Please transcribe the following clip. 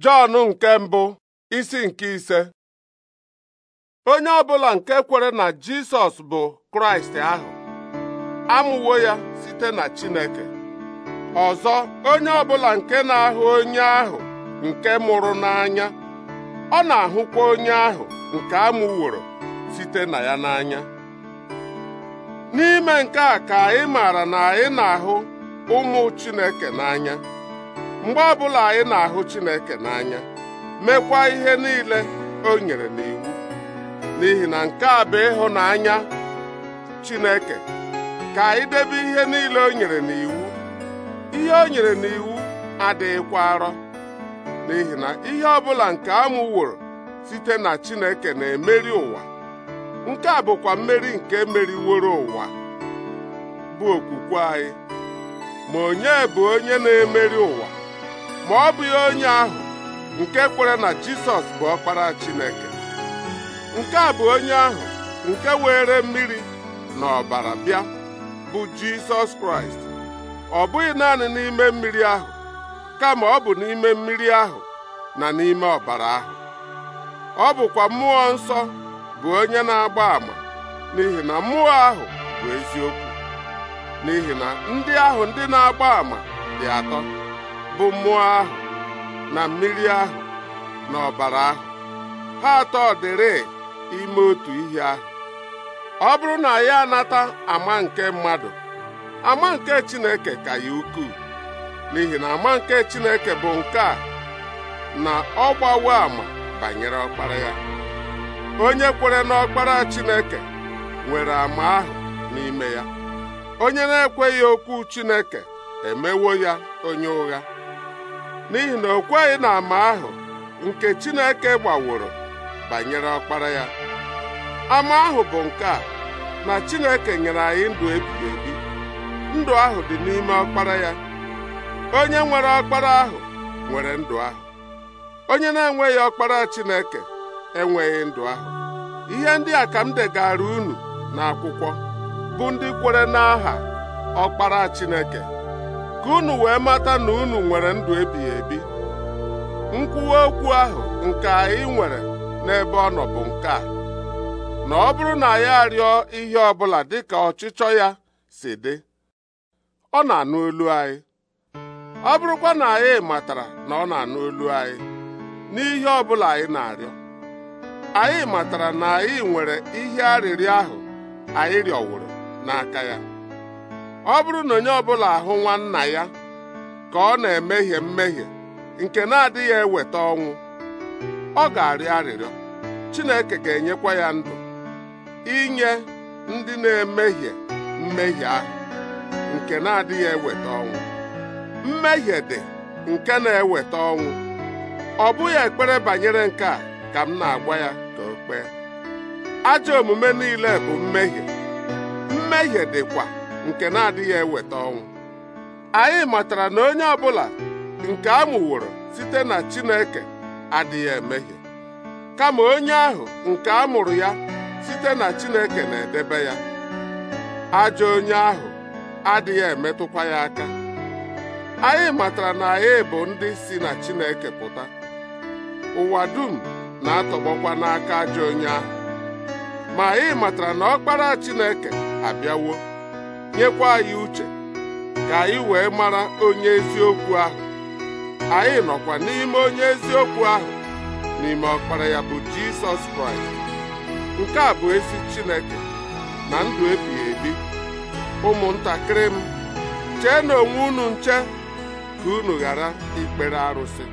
Jọn nke mbụ isi nke ise onye ọbụla nke kwere na Jisọs bụ Kraịst ahụ amụwo ya site na Chineke ọzọ onye ọ bụla nke na-ahụ onye ahụ nke mụrụ n'anya ọ na-ahụkwa onye ahụ nke amụworo site na ya n'anya n'ime nke a ka anyị maara na anyị na-ahụ ụmụ Chineke n'anya mgbe ọbụla anyị na-ahụ Chineke n'anya mekwa ihe niile o nyere n'iwu n'ihi na nke a bụ ịhụnanya Chineke ka anyị debe ihe niile o nyere n'iwu ihe o nyere n'iwu adịghịkwa arọ n'ihi na ihe ọbụla nke amụworo site na Chineke na-emeri ụwa nke a bụkwa mmeri nke meriworo ụwa bụ okwukwe anyị ma onye bụ onye na-emeri ụwa ma ọ bụghị onye ahụ nke kwere na Jisọs bụ ọkpara Chineke nke a bụ onye ahụ nke were mmiri na ọbara bịa bụ Jisọs Kraịst ọ bụghị naanị n'ime mmiri ahụ kama ọ bụ n'ime mmiri ahụ na n'ime ọbara ahụ ọ bụkwa mmụọ nsọ bụ onye na-agba àmà n'ihi na mmụọ ahụ bụ eziokwu n'ihi na ndị ahụ ndị na-agba àmà dị atọ bụ mmụọ ahụ na mmiri ahụ na ọbara ahụ ha atọ dịrị ime otu ihe ahụ ọ bụrụ na ya anata ama nke mmadụ ama nke Chineke ka ya ukwuu n'ihi na ama nke Chineke bụ nke a na ọ gbawo ama banyere ọkpara ya onye kwere n'ọkpara Chineke nwere ama ahụ n'ime ya onye na-ekweghị okwu Chineke emewo ya onye ụgha n'ihi na o kweghị na ama ahụ nke Chineke gbaworo banyere ọkpara ya ama ahụ bụ nke a na Chineke nyere anyị ndụ ebighị ebi ndụ ahụ dị n'ime ọkpara ya onye nwere ọkpara ahụ nwere ndụ ahụ onye na-enweghị ọkpara Chineke enweghị ndụ ahụ ihe ndị a ka m degara unu n'akwụkwọ bụ ndị kwere n'aha ọkpara Chineke ka unu wee mata na unu nwere ndụ ebighị ebi nkwuwa okwu ahụ nke anyị nwere n'ebe ọ nọ bụ nke a na ọ bụrụ na ya arịọ ihe ọbụla dị dịka ọchịchọ ya si dị ọ na-anụ olu anyị ọ bụrụkwa na anyị matara na ọ na-anụ olu anyị n'ihe ọbụla anyị na-arịọ anyị matara na anyị nwere ihe arịrịọ ahụ anyị rịọwụrụ n'aka ya ọ bụrụ na onye ọbụla ahụ nwanna ya ka ọ na-emehie mmehie nke na-adịghị eweta ọnwụ ọ ga-arịọ arịrịọ Chineke ga-enyekwa ya ndụ inye ndị na-emehie mmehie ahụ nke na-adịghị eweta ọnwụ mmehie dị nke na-eweta ọnwụ ọ bụghị ekpere banyere nke a ka m na-agwa ya ka o kpee ajọ omume niile bụ mmehie mmehie dịkwa nke na-adịghị eweta ọnwụ anyị matara na onye ọ bụla nke a mụworo site na Chineke adịghị emehie kama onye ahụ nke a mụrụ ya site na Chineke na-edebe ya ajọ onye ahụ adịghị emetụkwa ya aka anyị matara na anyị bụ ndị si na Chineke pụta ụwa dum na-atọgbọkwa n'aka ajọ onye ahụ ma anyị matara na ọkpara Chineke abịawo nyekwa anyị uche ka anyị wee mara onye eziokwu ahụ anyị nọkwa n'ime onye eziokwu ahụ n'ime ọkpara ya bụ Jisọs Kraịst nke a bụ ezi Chineke na ndụ ebighị ebi ụmụntakịrị m chee na onwe unu nche ka unu ghara ikpere arụsị